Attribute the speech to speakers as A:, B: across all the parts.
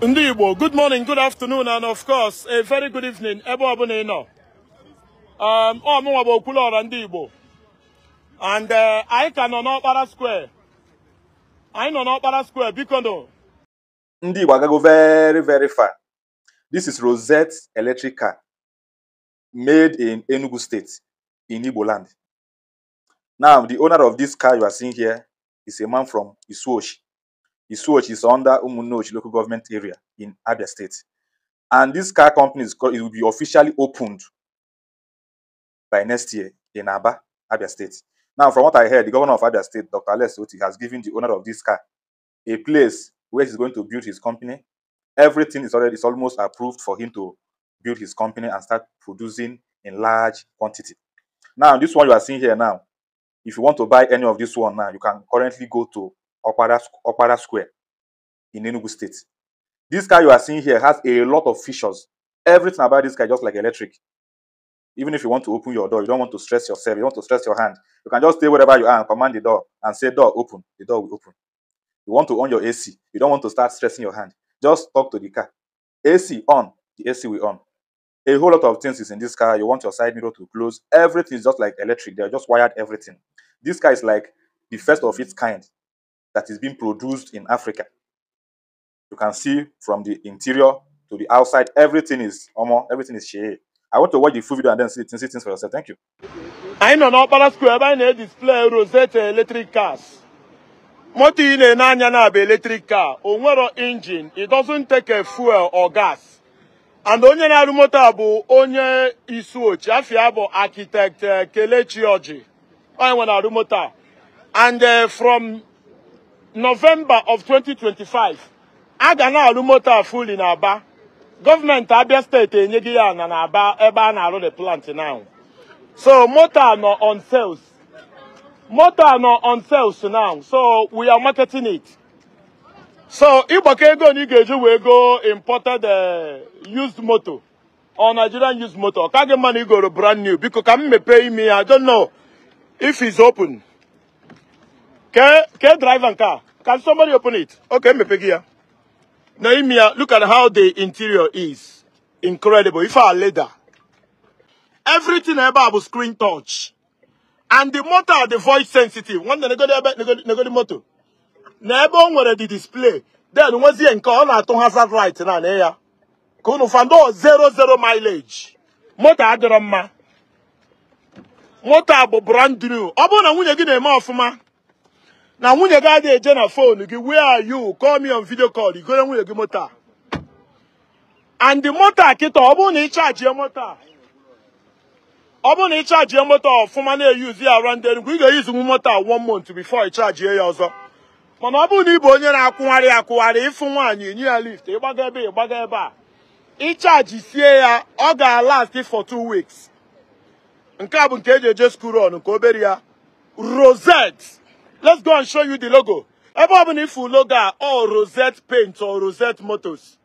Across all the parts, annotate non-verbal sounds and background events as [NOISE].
A: Ndibo. good morning, good afternoon, and of course, a very good evening, ebe um, Oh, ị am Ọ mụnwa bụ Okwuluọra ndị Igbo. And uh, anyị ka nọ n'ọkpara square. I nọ n'ọkpara square, biko nụ.
B: Ndị Igbo very very far. This is Rosette electric car made in Enugu State in Ibo land. Now, the owner of this car you are seeing here is a man from Isuoshi. Isuochi is under Umunochi local government area in Abia State. And this car company is called, it will be officially opened by next year in Aba, Abia State. Now, from what I heard, the governor of Abia State, Dr. Alex Oti, has given the owner of this car a place where he's going to build his company. Everything is already is almost approved for him to build his company and start producing in large quantity. Now, this one you are seeing here now, if you want to buy any of this one now, you can currently go to Okpada, Okpada Square in Enugu State. This car you are seeing here has a lot of features. Everything about this car just like electric. Even if you want to open your door, you don't want to stress yourself, you want to stress your hand. You can just stay wherever you are and command the door and say, door open, the door will open. You want to on your AC, you don't want to start stressing your hand. Just talk to the car. AC on, the AC will on. A whole lot of things is in this car. You want your side mirror to close. Everything is just like electric. They are just wired everything. This car is like the first of its kind that is being produced in Africa. You can see from the interior to the outside, everything is Omo. everything is shea. I want to watch the full video and then see, see things for yourself. Thank you.
A: anyị nọ n'ọkpara square ebe anyị display edisplay rosette electric cars moto ị na-ene anya na abụ electric car o nwero engine it doesn't take a fuel or gas and onye na-arụ moto a onye isu ochi afia bụ architect eh, Kelechi Oji onye nwe na-arụ moto a and eh, from November of 2025 agana ga na-arụ moto fully na Aba government Abia steeti enyeghị ya ana na Aba ebe a na-arụ the plant now so moto no on sales moto no on sales now so we are marketing it so ịgbakọ ego na ị eji wee go imported eh, used moto or Nigerian used moto kage kaghị igoro brand new biko ka m pay me ya I don't know if it's open ke ke driver nke a Can somebody open it? Okay, me pick here. Naimia, look at how the interior is. Incredible. If I leather. Everything bụ screen touch. And the motor, the voice sensitive. One day, n'ego go the motor. ebe o nwere the display. Then, nwezie nke ọ na-atụ hazard right na na ya. Ka unu fando 00 mileage. Motor adịrọ mma. Motor bụ brand new. Ọ bụrụ na nwunye gị na-eme ọfụma, na nwunye gị adịghị eje na phone gị where are you vidio me on igoro nwunye gị moto a and the moto a kịta ọ bụrụ na ị chajie moto ọ bụrụ na ị chajie moto ọfụma na-eyuzi ya around Enugu ị ga-eyuzinwu moto a one month before ị chajie ya ọzọ mana ọ bụrụ na ị bụ onye na-akwụgharị akwụgharị ịfụ nwaanyị nye ya lift ịgbaga ebe ịgbaga ebe a ịchaji sie ya ọ ga-alast for two weeks nke a bụ nke eji eje school run nke obere ya rosette Let's go and show you the logo. Ebe ọ bụla ifu logo a or Rosette Paint or Rosette Motors.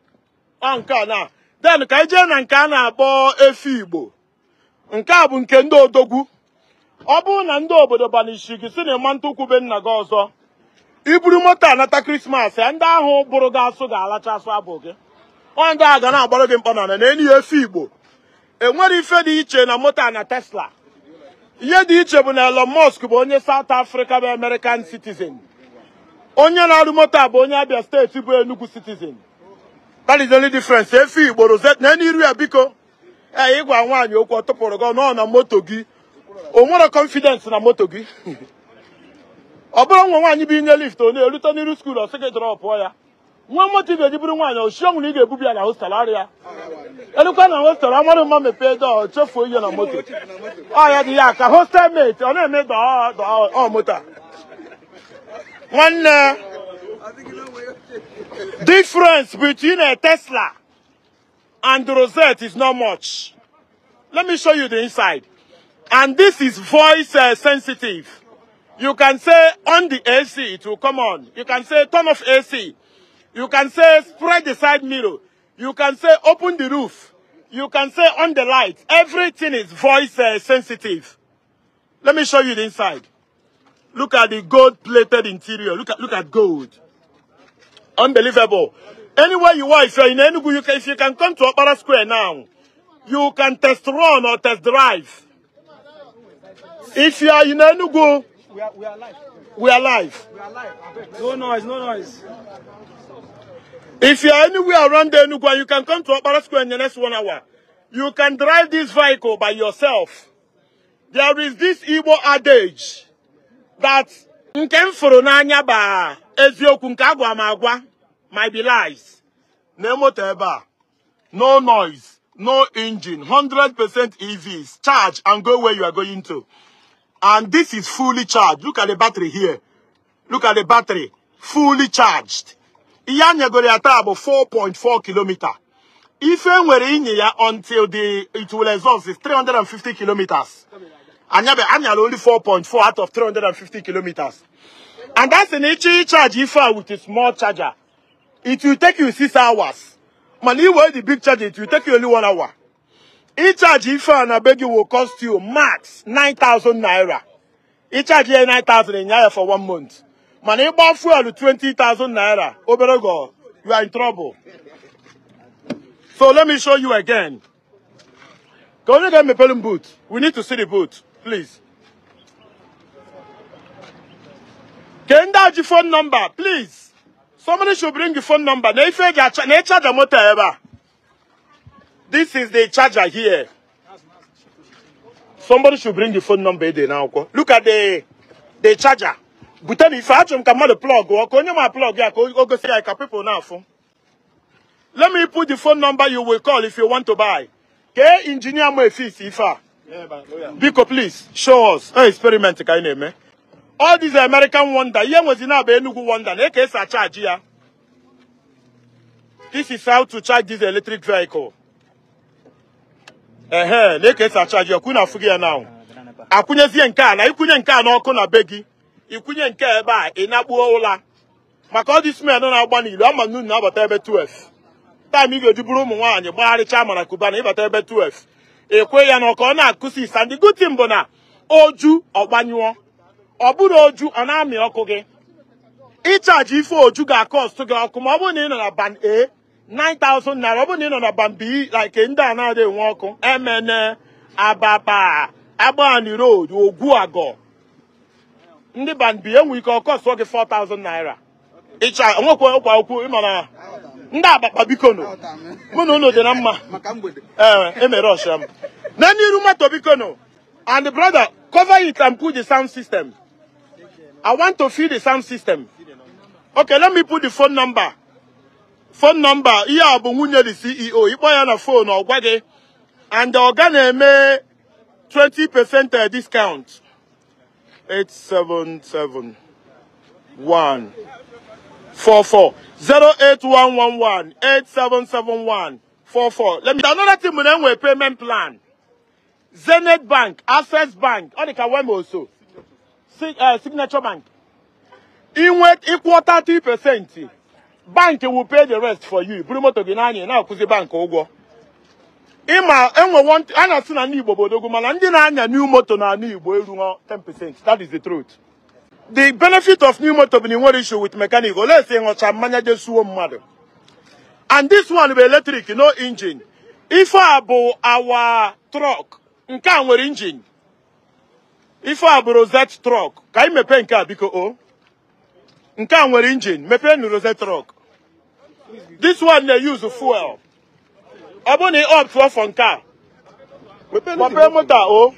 A: Ọ nke na. Then ka ije na nke a na-akpọ efi Igbo. Nke a bụ nke ndị odogwu. Ọ bụrụ na ndị obodo banishi gị si na ịma ntụkwube nna gị ọzọ. Iburu moto anata Krismas, ya e, ndị ahụ bụrụ gị asụ ga-alacha asụ abụ gị. Ọ ndị ga na-agbara gị mkpọ na na enyi ya Enwere e ife dị iche na moto na Tesla. ihe dị iche bụ na Elon Musk bụ onye saut afrịka bụ American citizen onye na-arụ moto a bụ onye Abia steeti bụ Enugu citizen that is the only difference gboro igboro na n'iru ya biko ee ịgwa nwaanyị okwu ọ tụpụrụ gị nọ na moto gị o nwere na moto gị [LAUGHS] ọ bụrụ nwa nwaanyị bụ inye lift ọ na-erute n'iru skuul ọ sị gị drọpụọ ya nwa motivate bụrụ nwaanyị oshiọnwụ na ị ga-ebubi ya na hostel arịa elukwa na hostel amarụ mma mepee dọọ chefuo ihe na moto ọ ya dị ya ka hostel mate ọ na-eme dọọ moto nwanne difference between a Tesla and the Rosette is not much. Let me show you the inside. And this is voice uh, sensitive. You can say on the AC, it will come on. You can say turn off AC, You can say spread the side mirror. You can say open the roof. You can say on the light. Everything is voice uh, sensitive. Let me show you the inside. Look at the gold-plated interior. Look at look at gold. Unbelievable. Anywhere you are, if you're in Enugu, you can, if you can come to Opera Square now, you can test run or test drive. If you are in Enugu,
B: we are, we are live. We are live.
A: No noise, no noise. If you are anywhere around the Enugwa, you can come to Opera Square in the next one hour. You can drive this vehicle by yourself. There is this Igbo adage that nke m na n'anya ba eziokwu nke agwa ma agwa might be lies. Na moto ebe a. No noise, no engine, 100% EVs. Charge and go where you are going to. And this is fully charged. Look at the battery here. Look at the battery. Fully charged. Iyanyegori atabo 4.4 kilometer. If enwere inye ya until the it will exhaust is 350 kilometers. Anyabe anyal only 4.4 out of 350 kilometers. And that's an HE charge if with a small charger. It will take you six hours. Man, where the big charger, it will take you only one hour. Each ife a na be gị will cost you max 9,000 naira. Ịchaji ya 9,000 ịnya ya for one month. Man, Mana ịgba fuel 20,000 naira, obere you are in trouble. So let me show you again. Ka onye get me m boot. We need to see the boot, please. Can Kenda the phone number, please. Somebody should bring the phone number. Na ife ga motor ever. This is the charger here. Somebody should bring the phone number there now. Look at the the charger. But if I come the plug or can you plug yeah, go see I can people now phone. Let me put the phone number you will call if you want to buy. Okay, engineer my fees if I Biko, please, show us. Hey, experiment ka ị na-eme. All these American wonder, ihe nwezi Enugu wonder, na-eke esi achaaji ya. This is how to charge this electric vehicle. ehe na-ekesa achaji ọkụ afụghị na akwụnyezie nke a na ikwunye nke a n'ọkụ na be gị ikwunye nke a ebe a ị na-akpuo ụla maka ọ dị na-agba n'ilu ama ma na-abata ebe 12 taịm ị ga-eduburu ụmụ nwaanyị gbagharịcha mara kubana ịbata ebe 12 ekwe ya na ọka ọ na-akụsi isa ndị gutin bụ na oju ọgbanyụọ ọ bụrụ oju ọ na-amị ọkụ gị ịchaji ife oju ga ọsụ gị ọkụ ma ọ bụrụ na ị nọ na ban a 9,000 naira ọ bụrụ na ị nọ na bambi like ndị a na-adịghị nwa ọkụ emene ababa agbani road agọ. ndị bambi enwe ike ọkọ sụọ gị 4,000 naira ịcha nwekwa ụkwa okwu ịma na ndị biko bikono mụ na unu dị na mma ee emere e ọsha m na n'iru moto bikono and the brother cover it and put the sound system i want to feel the sound system okay let me put the phone number fon nọmba ihe a bụ nwunye the CEO ịkpọ ya na fonu ọ gwa gị and ọ ga na-eme 20% discount 877 1 44 08111 8771 44 let me another thing we na payment plan Zenith Bank, Access Bank, ọ dịka Wema also, eh, Signature Bank. Inwe ịkwụ 30 percent. bank will pay the rest for you buru moto gị n'anya na-akwụzi bank ụgwọ ịma enwe a na-asị na ndị Igbo bụ odogwu mana ndị na-anya new moto na ala Igbo eruo 10% that is the truth the benefit of new moto bụ na ị issue with mechanic olee si ịṅụcha mmanya jesuo mmadụ and this one bụ electric no engine ife a bụ awa trọk nke a nwere engine ife a bụ rozet trọk ka anyị mepee nke a biko o nke a nwere injin mepee nu rose trọk this one na use fuel ọ bụrụ na ị ọptụọ fọ nke a mepee moto o oh.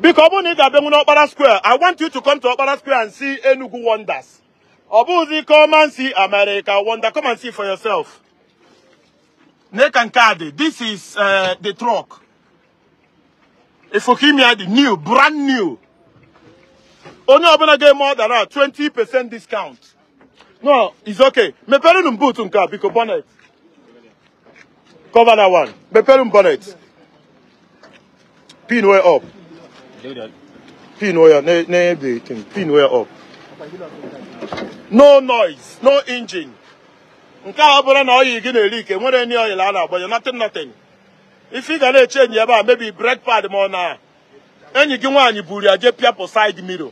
A: biko ọ bụrụ na ị ga-abịanwu n'ọkpara square i want you to come to ọkpara square and see enugu wonders ọ bụghịzi come and see america wonder come and see for yourself Nekankade, this is uh, the truck. Ifokimia, the new, brand new. onye ọbụla ga-eme ọdara 20% discount no it's okay mepere m boot nke a biko bonnet cover that one mepere m bonnet pin way up pin way up na pin way up no noise no engine nke a na oyi gị na-eri ike nwere nri oyi a na-agbanye nothing nothing if you na-eche enyi ebe a mebi pad ma ọ na enyi gi nwaanyị buru ya jee pịapụ side mirror.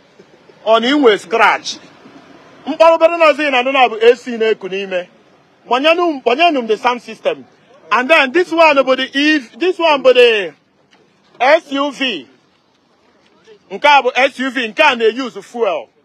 A: ọ na inwe skrach mkpọrọ obere nozi na adịna bụ AC na-eku n'ime kpọnyenụ m the sound system and then this one bụ the if e this one bụ the SUV nke a bụ SUV nke a na-eyuzu fuel